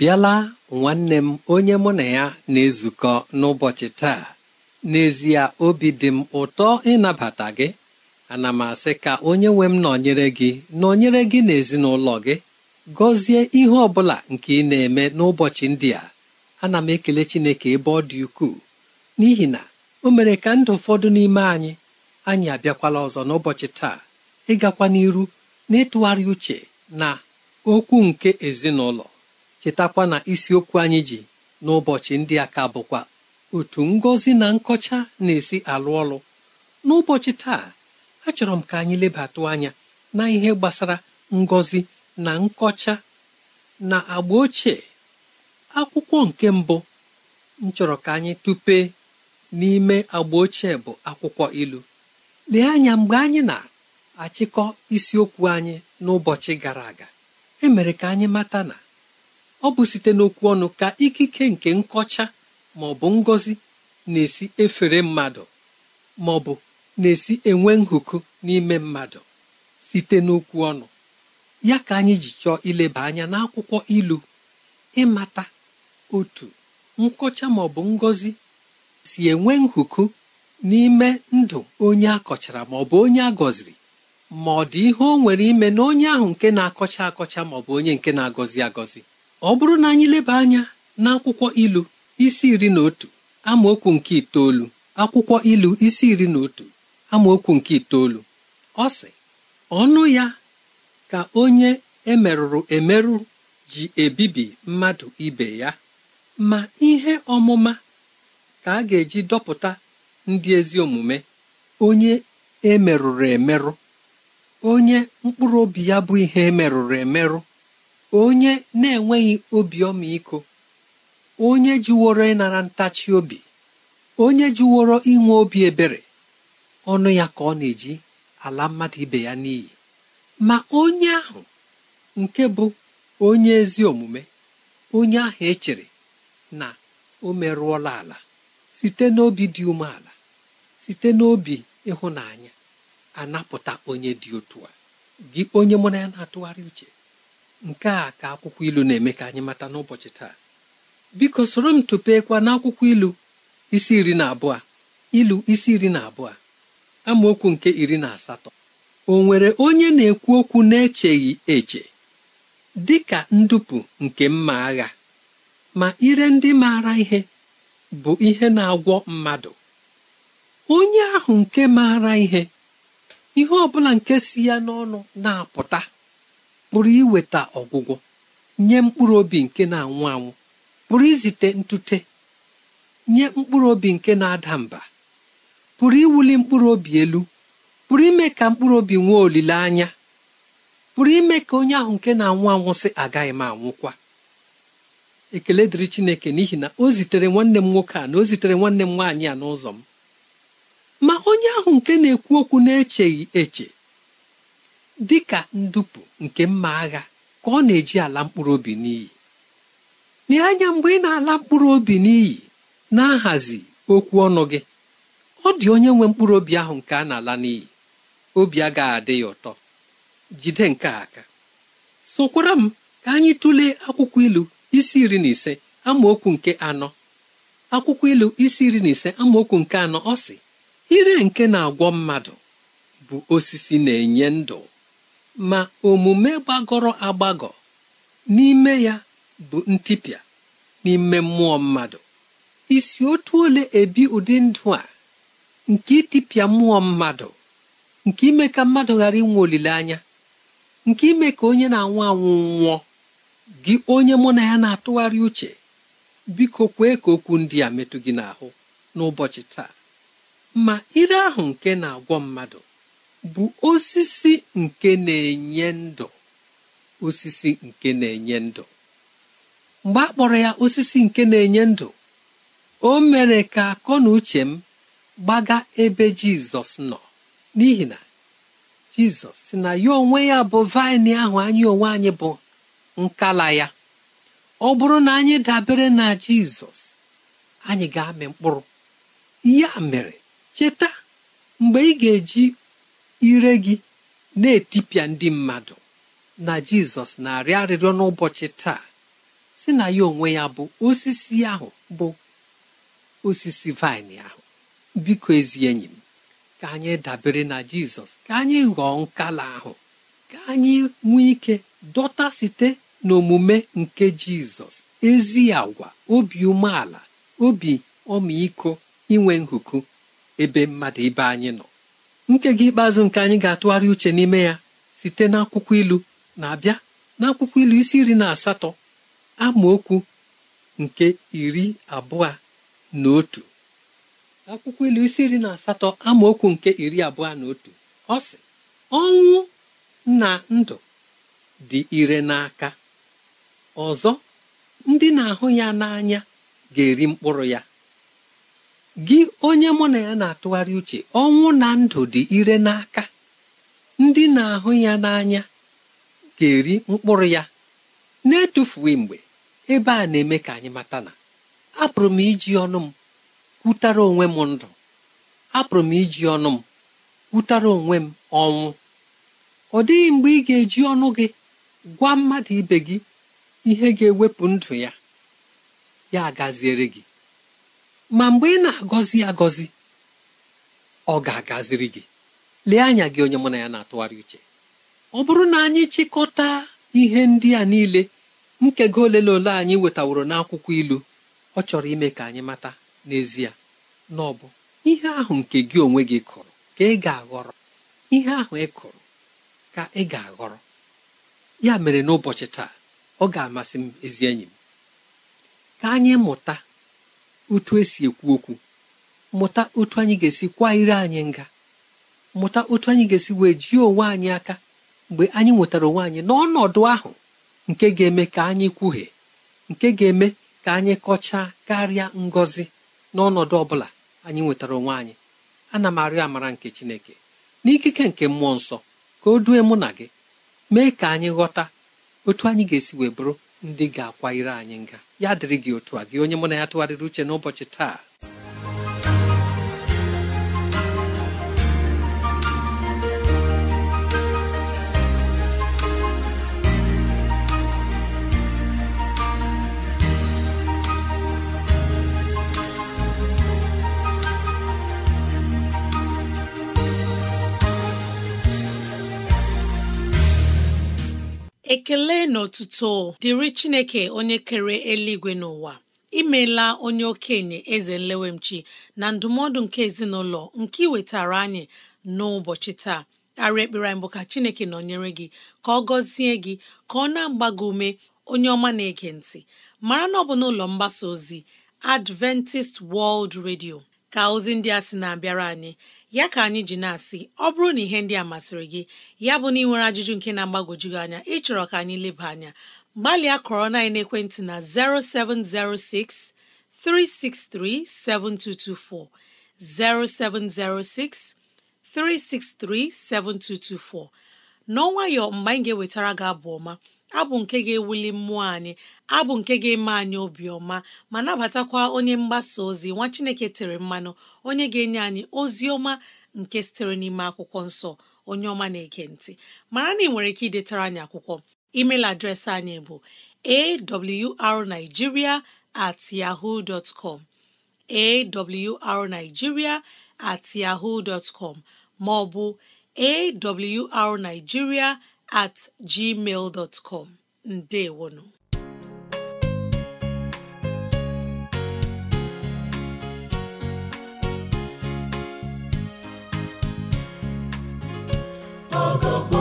bịala nwanne m onye mụ na ya na-ezukọ n'ụbọchị taa n'ezie obi dị m ụtọ ịnabata gị ana m asị ka onye nwe m nọnyere gị nọnyere gị na ezinụlọ gị gọzie ihe ọ bụla nke ị na-eme n'ụbọchị ndị a ana m ekele Chineke ebe ọ dị ukwuu n'ihi na o mere ka ndụ ụfọdụ n'ime anyị anyị abịakwala ọzọ n'ụbọchị taa ịgakwa n'iru n'ịtụgharị uche na okwu nke ezinụlọ chetakwa na isiokwu anyị ji n'ụbọchị ndị a ka bụkwa otu ngọzi na nkọcha na-esi alụ ọlụ n'ụbọchị taa achọrọ m ka anyị lebatụ anya na ihe gbasara ngozi na nkọcha na agba ochie akwụkwọ nke mbụ m chọrọ ka anyị tupe n'ime agba ochie bụ akwụkwọ ilu lee anya mgbe anyị na-achịkọ isiokwu anyị n'ụbọchị gara aga emere ka anyị mata na ọ bụ site n'okwu ọnụ ka ikike nke nkọcha ma ọ bụ ngọzi na-esi efere mmadụ ma ọ bụ na-esi enwe nhụkụ n'ime mmadụ site n'okwu ọnụ ya ka anyị ji chọọ ileba anya n'akwụkwọ ilu ịmata otu nkọcha ma ọ bụ ngọzi si enwe nhụkụ n'ime ndụ onye akọchara ma ọ bụ onye agọziri ma ọ dị ihe o nwere ime na onye ahụ nke na-akọcha akọcha ma ọ bụ onye nke na-agọzi agọzi ọ bụrụ na anyị leba anya n'akwụkwọ ilu isi iri na otu amaokwu nke itoolu akwụkwọ ilu isi iri na otu amaokwu nke itoolu ọ sị ọnụ ya ka onye emerụrụ emerụ ji ebibi mmadụ ibe ya ma ihe ọmụma ka a ga-eji dọpụta ndị ezi omume onye emerụrụ emerụ onye mkpụrụ obi ya bụ ihe emerụrụ emerụ onye na-enweghị obi ọmịiko onye jiworo ịnara ntachi obi onye jiworo inwe obi ebere ọnụ ya ka ọ na-eji ala mmadụ ibe ya n'iyi ma onye ahụ nke bụ onye ezi omume onye ahụ echere na o merụọla ala site n'obi dị umeala site n'obi ịhụnanya anapụta onye dị otu a gị onye mụ na ya na-atụgharị uche nke a ka akwụkwọ ilu na-eme ka anyị mata n'ụbọchị taa biko soro m tụpekwa n'akwụkwọ ilu isi iri na abụọ ilu isi iri na abụọ amaokwu nke iri na asatọ o nwere onye na-ekwu okwu na-echeghị eche dị ka ndupu nke mma agha ma ire ndị maara ihe bụ ihe na-agwọ mmadụ onye ahụ nke maara ihe ihe ọ bụla nke si ya n'ọnụ na-apụta pụrụ iweta ọgwụgwọ nye mkpụrụ obi nke na-anwụ anwụ pụrụ izite ntute nye mkpụrụ obi nke na-ada mba pụrụ iwuli mkpụrụ obi elu pụrụ ime ka mkpụrụ obi nwee olileanya pụrụ ime ka onye ahụ nke na-anwụ anwụ sị agaghị m anwụkwa ekele dịrị Chineke n'ihi na o zitere nwanne m nwoke a na o zitere nwanne m nwaanyị a n'ụzọ m ma onye ahụ nke na-ekwu okwu na-echeghị eche dị ka ndupu nke mma agha ka ọ na-eji ala mkpụrụ obi n'iyi lee anya mgbe ị na-ala mkpụrụ obi n'iyi na-ahazi okwu ọnụ gị ọ dị onye nwe mkpụrụ obi ahụ nke a na-ala n'iyi obi agaghị adị ya ụtọ jide nke aka sokwara m ka anyị tụlee akwụkwọ ilu isi iri na ise amaokwu nke anọ akwụkwọ ilu isi iri na ise amaokwu nke anọ ọ sị ire nke na-agwọ mmadụ bụ osisi na-enye ndụ ma omume gbagọrọ agbagọ n'ime ya bụ ntịpịa n'ime mmụọ mmadụ isi otu ole ebi ụdị ndụ a nke ịtịpịa mmụọ mmadụ nke ime ka mmadụ ghara inwe olileanya nke ime ka onye na-anwụ anwụ nwụọ gị onye mụ na ya na-atụgharị uche biko kwee ka okwu ndị a metụ gị n'ahụ n'ụbọchị taa ma ire ahụ nke na-agwọ mmadụ bụ osisi nke na-enye ndụ osisi nke na-enye ndụ mgbe a kpọrọ ya osisi nke na-enye ndụ o mere ka akọ na uche m gbaga ebe jizọs nọ n'ihi na jizọs si na ya onwe ya bụ vaịnị ahụ anyị onwe anyị bụ nkala ya ọ bụrụ na anyị dabere na jizọs anyị ga-amị mkpụrụ ya mere cheta mgbe ị ga-eji ire gị na-etipịa ndị mmadụ na jizọs na-arịọ arịrịọ n'ụbọchị taa si na ya onwe ya bụ osisi ahụ bụ osisi vaịn ahụ biko ezi enyi m ka anyị dabere na jizọs ka anyị ghọọ nkala ahụ ka anyị nwee ike dọta site n'omume nke jizọs ezi agwa obi umeala obi ọmịiko inwe nhuku ebe mmadụ ibe anyị nọ nkega ikpeazụ nke anyị ga-atụgharị uche n'ime ya site n'akwụkwọ ilu na-abịa n'akwụkwọ ilu isi iri na asatọ amaokwu nke iri abụọ na otu akwụkwọ ilu isi iri na asatọ amaokwu nke iri abụọ na otu ọ sị ọnwụ na ndụ dị ire n'aka ọzọ ndị na-ahụ ya n'anya ga-eri mkpụrụ ya gị onye mụ na ya na-atụgharị uche ọnwụ na ndụ dị ire n'aka ndị na-ahụ ya n'anya ga-eri mkpụrụ ya na-etufughị mgbe ebe a na-eme ka anyị mata na apụrụ m iji ọnụ m kwutara onwe m ndụ apụrụ m iji ọnụ m kwutara onwe m ọnwụ ọ dịghị mgbe ị ga-eji ọnụ gị gwa mmadụ ibe gị ihe ga-ewepụ ndụ ya ya agaziere gị ma mgbe ị na-agọzi agọzi ọ ga-agaziri gị lee anya gị onye mụ na ya na-atụgharị uche ọ bụrụ na anyị chịkọta ihe ndị a niile nkego ole na ole anyị wetaworo n'akwụkwọ ilu ọ chọrọ ime ka anyị mata n'ezie na ọ bụ ihe ahụ nke gị onwe gị kụrụ ka ị ga-aghọrọ ihe ahụ ị kụrụ ka ị ga-aghọrọ ya mere n'ụbọchị taa ọ ga-amasị m ezi enyi m ka anyị mụta otu esi ekwu okwu mụta otu anyị ga-esi kwa ire anyị nga mụta otu anyị ga-esi wee jie onwe anyị aka mgbe anyị nwetara onwe anyị n'ọnọdụ ahụ nke ga-eme ka anyị kwuhie nke ga-eme ka anyị kọchaa karịa ngọzi n'ọnọdụ ọ bụla anyị nwetara onwe anyị ana m arịọ amara nke Chineke n'ikike nke mmụọ nsọ ka o due mụ na gị mee ka anyị ghọta otu anyị ga-esi wee bụrụ ndị ga-akwanyere anyị nga ya dịrị gị otu a gị onye mụ na ya tụgharịrị uche n'ụbọchị taa ekele n'ọtụtụ dịrị chineke onye kere eluigwe n'ụwa imeela onye okenye eze nlewemchi na ndụmọdụ nke ezinụlọ nke iwetara anyị n'ụbọchị taa arịa ekpere anyị bụ ka chineke nọnyere gị ka ọ gọzie gị ka ọ na-agba gị ume onye ọma na-ege ntị mara na ọ bụ n'ụlọ mgbasa ozi Adventist World Radio ka ozi ndị a na-abịara anyị ya ka anyị ji na-asị ọ bụrụ na ihe ndị a masịrị gị ya bụ na ị nwere ajụjụ nke na-agbagwoju gị anya ịchọrọ ka anyị leba anya gbalịa kọrọ na ekwentị na 0706 363 7224 0706 363 7224 n'ọnwayọ mgbe anyị ga-ewetara gị abụ ọma abụ nke ga-ewuli mmụọ anyị abụ nke ga-eme anyị obiọma ma nabatakwa onye mgbasa ozi nwa Chineke tere mmanụ onye ga-enye anyị ozi ọma nke sitere n'ime akwụkwọ nsọ onye ọma na-ege ntị mara na ị nwere ike idetara anyị akwụkwọ email adreesị anyị bụ arigiria at at maọbụ ma ọ at gmail dot com ndewonu ọgọgọ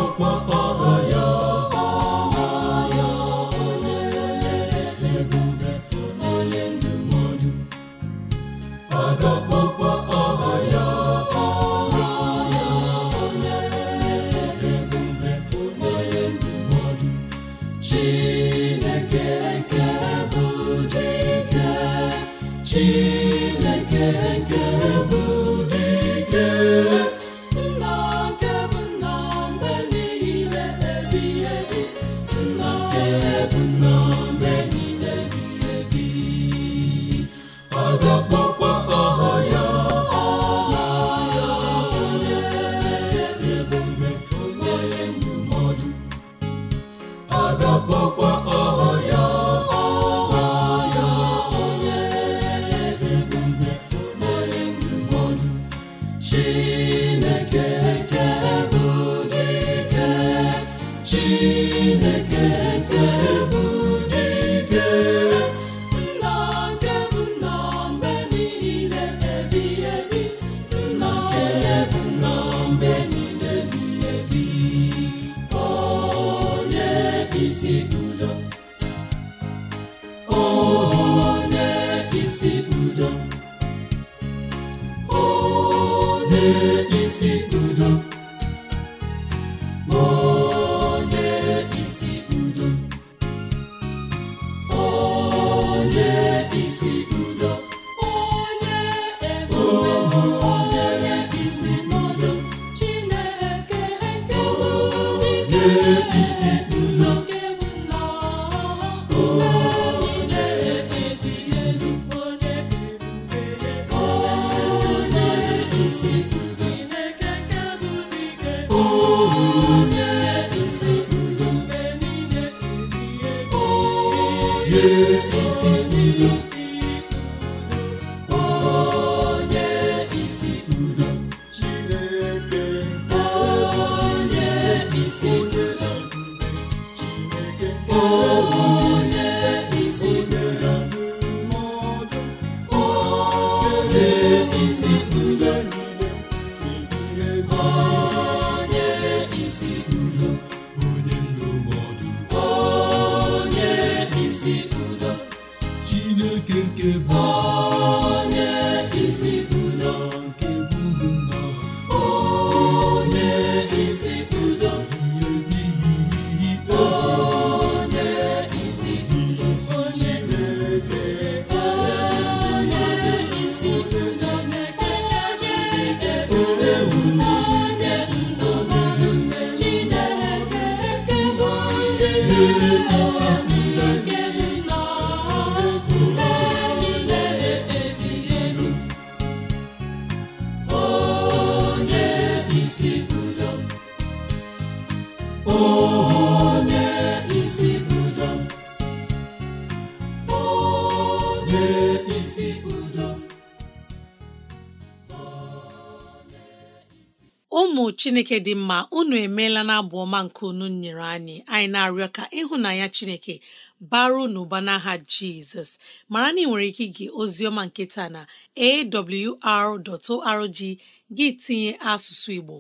chineke dị mma unu emeela na abụ ọma nke unu nyere anyị anyị na-arịọ ka ịhụnanya chineke baru n'ụba n'aha jizọs mara na ị nwere ike ige oziọma nke taa na awr.org gị tinye asụsụ igbo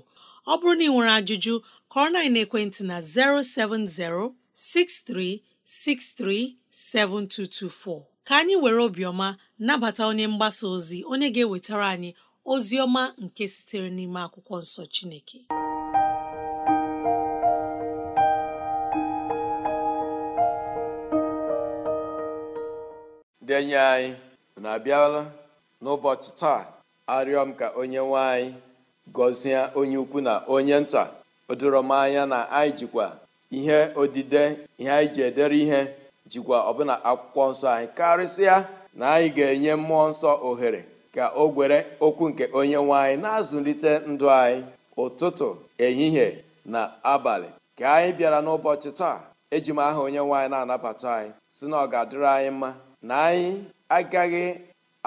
ọ bụrụ na ị nwere ajụjụ kọrọ na ekwentị na 07063637224 ka anyị were obiọma nabata onye mgbasa ozi onye ga-ewetara anyị ozi nke sitere n'ime akwụkwọ nsọ Chineke ndị enyi anyị na-abịala n'ụbọchị taa arịọ m ka onye nwe anyị gọzie onye ukwu na onye nta o m anya na anyị jikwa ihe odide ihe anyị ji edere ihe jikwa ọbụna akwụkwọ nsọ anyị karịsịa na anyị ga-enye mmụọ nsọ ohere ka o gwere okwu nke onye nwanyị anyị na-azụlite ndụ anyị ụtụtụ ehihie na abalị ka anyị bịara n'ụbọchị taa eji m aha onye nwaanyị anyị na-anabata anyị si na ọ ga-adịrị anyị mma na anyị agaghị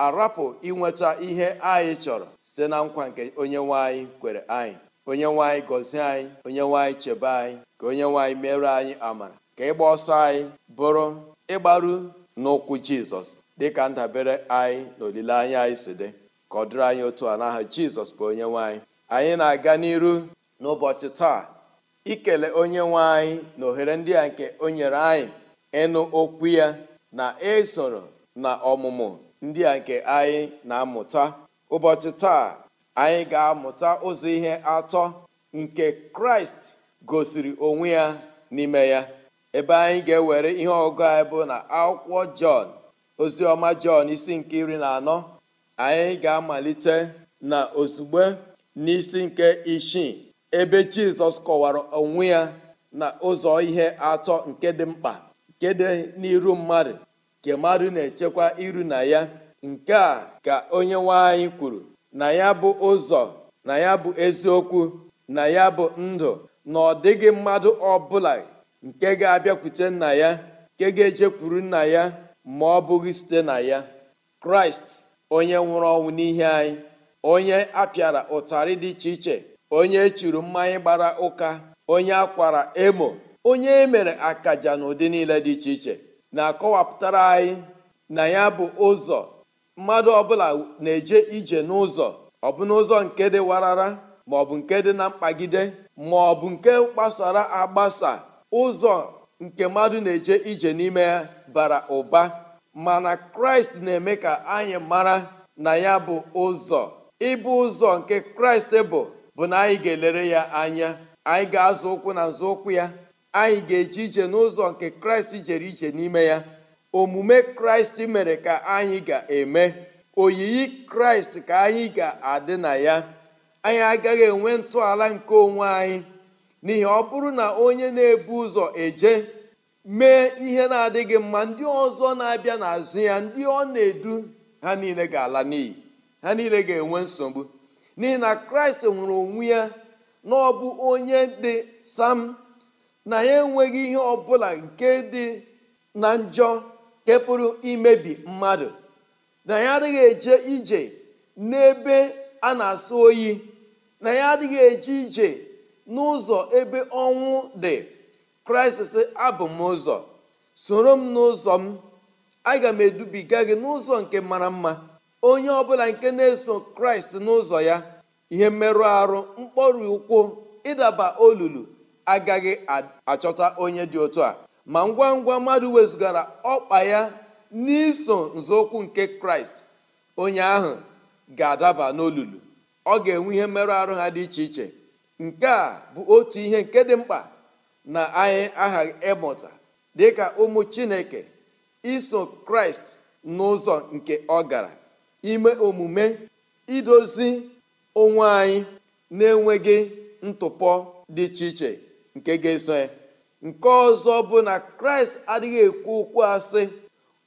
arapụ inweta ihe anyị chọrọ site na nkwa nke onye nwaanyị anyị kwere anyị onye nwe anyị gọzie anyị onye nwe anyị chebe anyị ka onye nwe anyị anyị amara ka ịgba ọsọ anyị bụrụ ịgbaru n'ụkwụ jizọs dị ka ndabere anyị na olileanya anyị si dị ka ọ dịrị anyị otu a n'aha jizọs bụ onye nwanyị anyị na-aga n'iru n'ụbọchị taa ikele onye nwanyị na ohere ndị a nke o nyere anyị ịnụ okwu ya na esoro na ọmụmụ ndị a nke anyị na-amụta ụbọchị taa anyị ga-amụta ụzọ ihe atọ nke kraịst gosiri onwe ya n'ime ya ebe anyị ga-ewere ihe ọgụ anyị bụ na akwụkwọ jọn ozi ọma jọn isi nke iri na anọ anyị ga-amalite na ozugbo n'isi nke isii ebe jizọs kọwara onwe ya na ụzọ ihe atọ nke dị mkpa nke dị n'iru mmadụ nke mmadụ na-echekwa iru na ya nke a ka onye nwe anyị kwuru na ya bụ ụzọ na ya bụ eziokwu na ya bụ ndụ na ọ dịghị mmadụ ọbụla nke ga-abịakwute nna ya nke ga-ejekwuru nna ya ma ọ bụghị site na ya kraịst onye nwụrụ ọnwụ n'ihe anyị onye apịara ụtarị dị iche iche onye echuru mmanya gbara ụka onye akwara emo onye emere akaja na ụdị niile dị iche iche na-akọwapụtara anyị na ya bụ ụzọ mmadụ ọbụla na-eje ije n'ụzọ ọ bụ n'ụzọ nke dị warara ma ọ bụ nke dị na mkpagide ma ọ bụ nke gbasara agbasa ụzọ nke mmadụ na-eje ije n'ime ya bara ụba mana kraịst na-eme ka anyị mara na ya bụ ụzọ ịbụ ụzọ nke kraịst bụ bụ na anyị ga-elere ya anya anyị ga-azụ ụkwụ na ụkwụ ya anyị ga eji ije n'ụzọ nke kraịst jere ije n'ime ya omume kraịst mere ka anyị ga-eme oyiyi kraịst ka anyị ga-adị na ya anyị agaghị enwe ntọala nke onwe anyị n'ihi ọ bụrụ na onye na-ebu ụzọ eje mee ihe na-adịghị mma ndị ọzọ na-abịa n'azụ ya ndị ọ na-edu ha niile ga-ala n'iyi ha niile ga-enwe nsogbu n'ihi na kraịst nwere onwe ya na ọ bụ onye dị sam na ya enweghị ihe ọbụla nke dị na njọ nke imebi mmadụ na ya adịghị eje ije n'ebe a na-asụ oyi na ya adịghị eje ije n'ụzọ ebe ọnwụ dị kraịst sị abụ m ụzọ soro m n'ụzọ m aga m edubiga gị n'ụzọ nke mara mma onye ọbụla nke na-eso kraịst n'ụzọ ya ihe mmerụ arụ mkpọrụ ụkwụ ịdaba olulu agaghị achọta onye dị otu a ma ngwa ngwa mmadụ wezụgara ọkpa ya n'iso nzọụkwụ nke kraịst onye ahụ ga-adaba n'olulu ọ ga-enwe ihe mmerụ arụ ha dị iche iche nke a bụ otu ihe nke dị mkpa na anyị aghaghị ịmụta dịka ụmụ chineke iso kraịst n'ụzọ nke ọ gara ime omume idozi onwe anyị na-enweghị ntụpọ dị iche iche nke ga-eso ya nke ọzọ bụ na kraịst adịghị ekwu okwu asị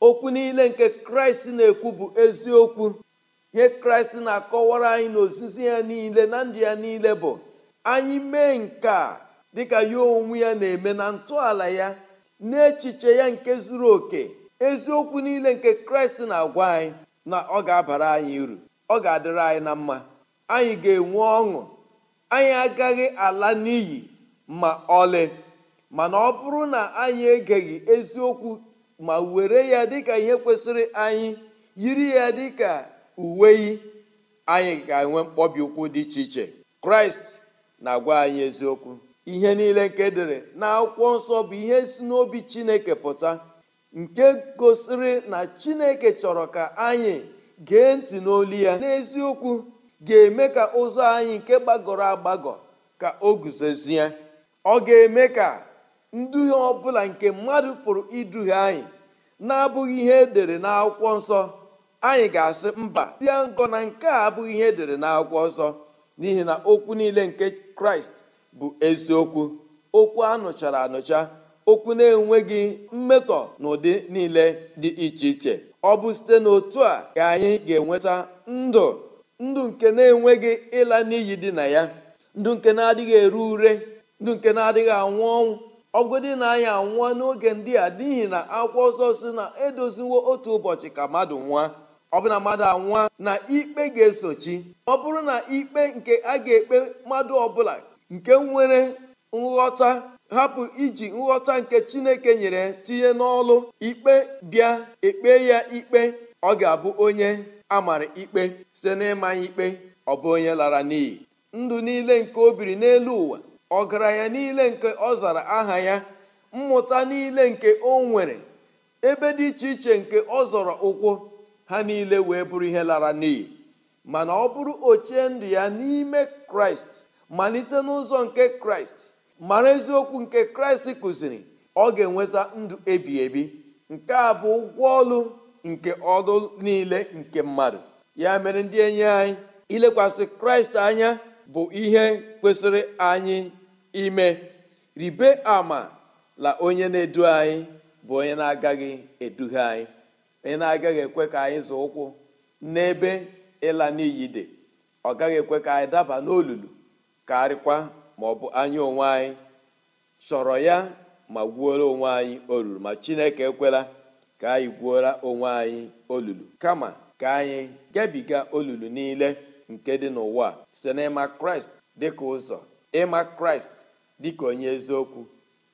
okwu niile nke kraịst na-ekwu bụ eziokwu ihe kraịst na-akọwara anyị ozizi ya niile na ndụ ya niile bụ anyị mee nke a dịka ya onwe ya na-eme na ntọala ya na n'echiche ya nke zuru oke eziokwu niile nke kraịst na-agwa anyị na ọ ga-abara anyị uru ọ ga-adịrị anyị na mma anyị ga-enwe ọṅụ anyị agaghị ala n'iyi ma ọlị mana ọ bụrụ na anyị egeghị eziokwu ma were ya dịka ihe kwesịrị anyị yiri ya dịka uwe yi anyị ga-enwe mkpọbi ụkwụ dị iche iche kraịst na-agwa anyị eziokwu ihe niile nke dere akwụkwọ nsọ bụ ihe si n'obi chineke pụta nke gosiri na chineke chọrọ ka anyị gee ntị n'olu ya n'eziokwu ga-eme ka ụzọ anyị nke gbagọrọ agbagọ ka o guzozie ọ ga-eme ka nduhie ọbụla nke mmadụ pụrụ iduhie anyị na-abụghị ihe edere n'akwụkwọ nsọ anyị ga-asị mba dị ya ngọ na nke a abụghị ihe edere n'akwụkwọ nsọ n'ihi na okwu niile nke kraịst bụ eziokwu okwu anụchara anụcha okwu na-enweghị mmetọ n'ụdị niile dị iche iche ọ bụ site n'otu a ka anyị ga-enweta ndụ ndụ nke na-enweghị ịla n'iyi dị na ya ndụ nke na-adịghị eru ure ndụ nke na-adịghị anwụ ọnwụ ọgụdị na anyị anwụọ n'oge ndị a n'ihi na akwụkwọ ọsọ si na edoziwo otu ụbọchị ka mmadụ nwa ọ bụ na mmadụ anwụọ na ikpe ga-esochi ọ bụrụ na ikpe nke a ga-ekpe mmadụ ọbụla nke nwere nghọta hapụ iji nghọta nke chineke nyere tinye n'ọlụ ikpe bịa ekpe ya ikpe ọ ga-abụ onye a mara ikpe site n'ịmanya ikpe ọ bụ onye lara n'iyi ndụ niile nke o biri n'elu ụwa ọgaranya niile nke ọ zara aha ya mmụta niile nke o nwere ebe dị iche iche nke ọ zọrọ ụkwụ ha niile wee bụrụ ihe lara n'iyi mana ọ bụrụ ochie ndụ ya n'ime kraịst malite n'ụzọ nke kraịst mara eziokwu nke kraịst kụziri ọ ga-enweta ndụ ebi ebi nke a bụ ụgwọ ọlụ nke ọdụ niile nke mmadụ ya mere ndị enyi anyị ilekwasị kraịst anya bụ ihe kwesịrị anyị ime ribe ama la onye na-edu anyị bụ onye na-agaghị eduhie anyị onye na-agaghị ekwe ka anyị zụ ụkwụ n'ebe ịla n'iyi dị ọ gaghị ekwe ka anyị daba n'olulu karịkwa ma ọ bụ anya onwe anyị chọrọ ya ma gwuola onwe anyị olulu ma chineke ekwela ka anyị gwuola onwe anyị olulu kama ka anyị gabiga olulu niile nke dị n'ụwa site n'ịma kraịst dịka ụzọ ịma kraịst dịka onye eziokwu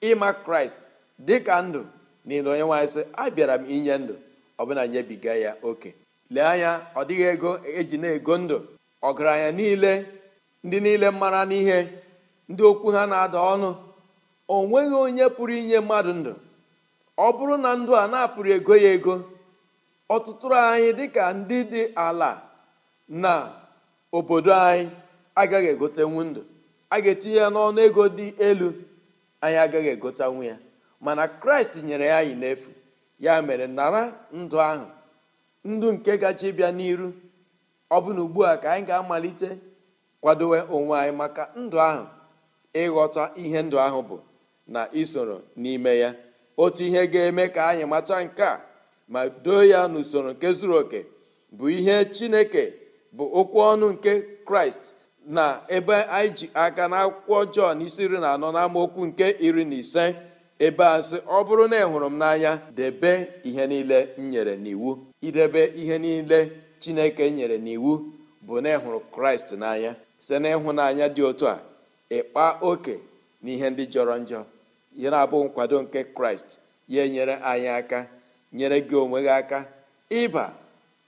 ịma kraịst dịka ndụ niile onye nwaanyị sị abịara m inye ndụ bụla nyebiga ya oke lee anya ọ dịghị ego eji na-ego ndụ ọgaranya niile ndị niile mara n'ihe ndị okwu ha na-ada ọnụ o nweghị onye pụrụ inye mmadụ ndụ ọ bụrụ na ndụ a na-apụrụ ego ya ego ọtụtụ anyị dịka ndị dị ala na obodo anyị agaghị egotenwu ndụ a ga-etinye ya n'ọnụ ego dị elu anyị agaghị egotenwu ya mana kraịst nyere ya anyị n'efu ya mere nara ndụ ahụ ndụ nke gaji bịa n'iru ọ bụ na ugbu a ka anyị ga-amalite kwadowe onwe anyị maka ndụ ahụ ịghọta ihe ndụ ahụ bụ na isoro n'ime ya otu ihe ga-eme ka anyị mata nke a ma doo ya n'usoro nke zuru oke bụ ihe chineke bụ okwu ọnụ nke kraịst na ebe anyị ji aka na akwụkwọ jọn isi iri na anọ n'amaokwu nke iri na ise ebe a sị ọ bụrụ na ịhụrụ m n'anya debe ihe niile m nyere n'iwu idebe ihe niile chineke nyere n'iwu bụ na ịhụrụ kraịst n'anya site n'ịhụnanya dị otu a ịkpa oke na ihe ndị jọrọ njọ ya na-abụ nkwado nke kraịst ya enyere anyị aka nyere gị onwe gị aka ịba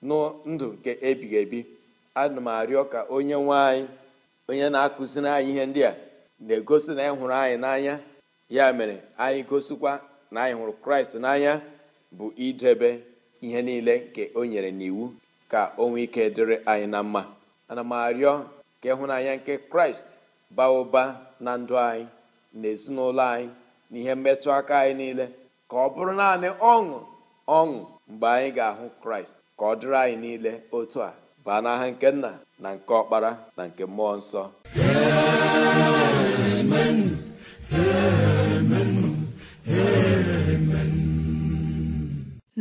nụ ndụ nke ebighị ebi ana m arịọ ka onye nwe anyị onye na-akụziri anyị ihe ndị a na-egosi na ịhụrụ hụrụ anyị n'anya ya mere anyị gosikwa na anyị hụrụ kraịst n'anya bụ idebe ihe niile nke o nyere n'iwu ka o nwee ike dịrị anyị na mma ana m arịọ ka ịhụnanya nke kraịst baa ụba na ndụ anyị na ezinụlọ anyị na ihe mmetụ aka anyị niile ka ọ bụrụ naanị ọṅụ ọṅụ mgbe anyị ga-ahụ kraịst ka ọ dịrị anyị niile otu a baa n'aha nke nna na nke ọkpara na nke mmụọ nsọ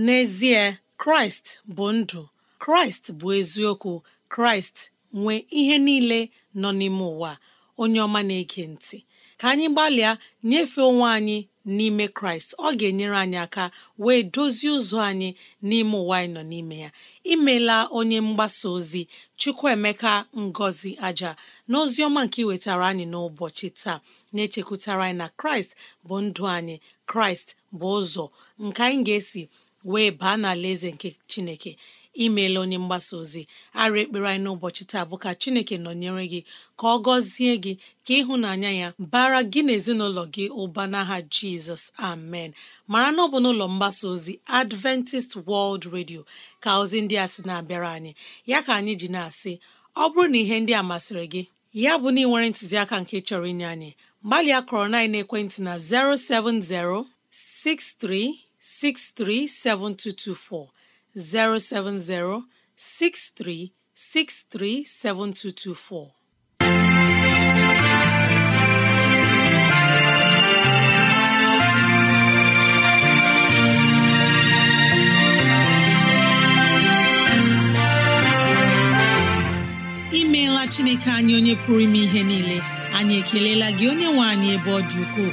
n'ezie kraịst bụ ndụ kraịst bụ eziokwu kraịst nwee ihe niile nọ n'ime ụwa onye ọma na-ege ntị ka anyị gbalịa nyefee onwe anyị n'ime kraịst ọ ga-enyere anyị aka wee dozie ụzọ anyị n'ime ụwa anyị nọ n'ime ya imela onye mgbasa ozi chukwuemeka ngozi aja na ozi ọma nke iwetara anyị n'ụbọchị taa na-echekwutara anyị na kraịst bụ ndụ anyị kraịst bụ ụzọ nke anyị ga-esi wee baa n'ala eze nke chineke imeela onye mgbasa ozi ara ekpere anyị n'ụbọchị taa bụ ka Chineke nọnyere gị ka ọ gọzie gị ka ịhụnanya ya bara gị na ezinụlọ gị ụba n'aha Jizọs amen mara na ọ bụ n'ụlọ mgbasa ozi Adventist World Radio ka ozi ndị a sị na-abịara anyị ya ka anyị ji na-asị ọ bụrụ na ihe ndị a masịrị gị ya bụ na ị nwere ntụziaka nke chọrọ inye anyị gbalịa kọrọ na ekwentị na 070 6363 7224 7224. imeela chineke anyị onye pụrụ ime ihe niile anyị ekelela gị onye nwe anyị ebe ọ dị ukwuu.